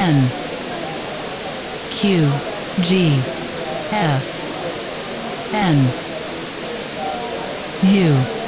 N Q G F N U